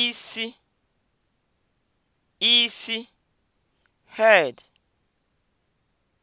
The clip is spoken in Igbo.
isi isi head